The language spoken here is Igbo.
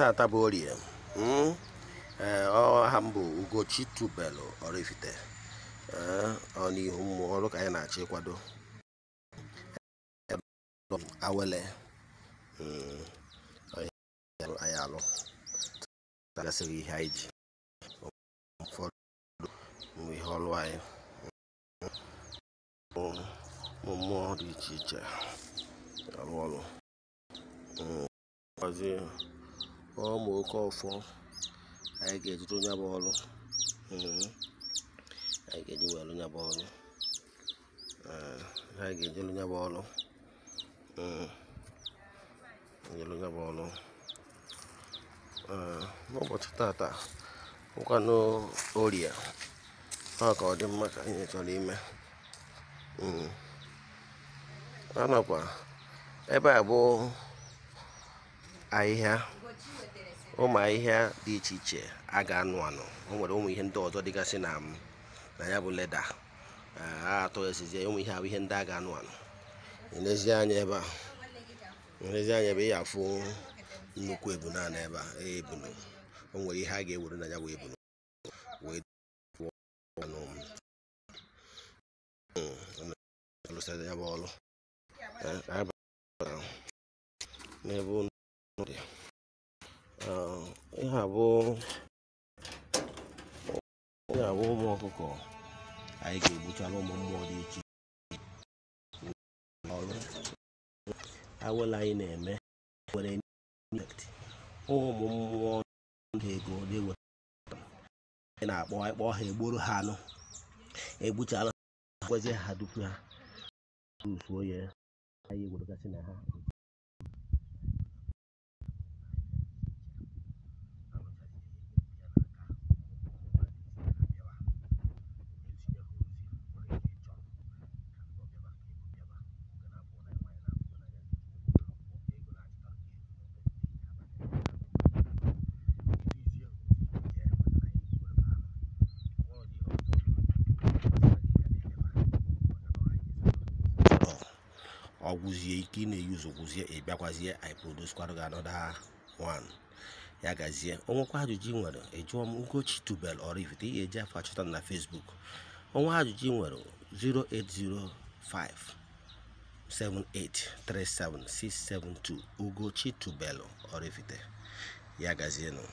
tata bụ orie hmm? eh, ọha mbụ ugochi tubelu Oraifite eh, ọ n'ihu mmụọ ọrụ ka anyị na-achọ ịkwado eh, awele hmm, anyị alụ gasịrị ihe anyị ji ụfọdụ ihe ọrụ anyị hmm, ụmụ mmụọ dị iche iche arụ ọrụ Ọmụ ma oke ọfọ anyị ga-ejide onye bụ ọrụ anyị ga-eji wee lụ ya bụ ọrụ anyị ga-eji lụ ya bụ ọrụ nyelụ ya bụ ọrụ n'ụbọchị tata nkwanụ oria ọ ka ọ dị mma ka anyị chọrọ ime a nakwa ebe a bụ ahịhịa ụmụ ahịhịa dị iche iche a ga-anụ anụ o nwere ụmụ ihe ndị ọzọ dịgasị na na ya bụ leda a atọ esizi ụmụ ihe ahụ ihe ndị a ga-anụ anụ elezi anya ebe a elezi anya ebe ị afụ nnukwu ebunu na ebe a ebunu e, o nwere ihe a ga-ewere na ya ebunu hmm. ya bụ ọrụ n'ebe dị ihe abụ ihe abụ ụmụ ọkụkọ anyị ga-egbuchara ụmụ mmụọ dị iche ọrụ awụla anyị na-eme nwere ụmụ mmụọ ndị ego dị wetara na-akpọ ịkpọ ha egboro ha anụ egbuchara ha kwezi ha dupu ha usuo ya anyị egwuregasị na ha ọgwụzie ike ị na-eyuzu gwụzie ị bịakwazie iproduskwarụ gị anọda 1 ya gazie onwekwa ajụjụ ị e nwere ejụọ m Ugochi tubel ị ihe eji afọ achọta na Facebook onwe ajụjụ ị nwere 0805 7837672 Ugochi tubel orifite ya gazienụ